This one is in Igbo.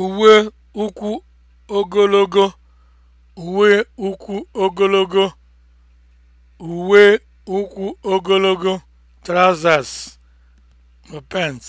Uwe ụkwụ ogologo, uwe ụkwụ ogologo, uwe ụkwụ ogologo, trousers, pants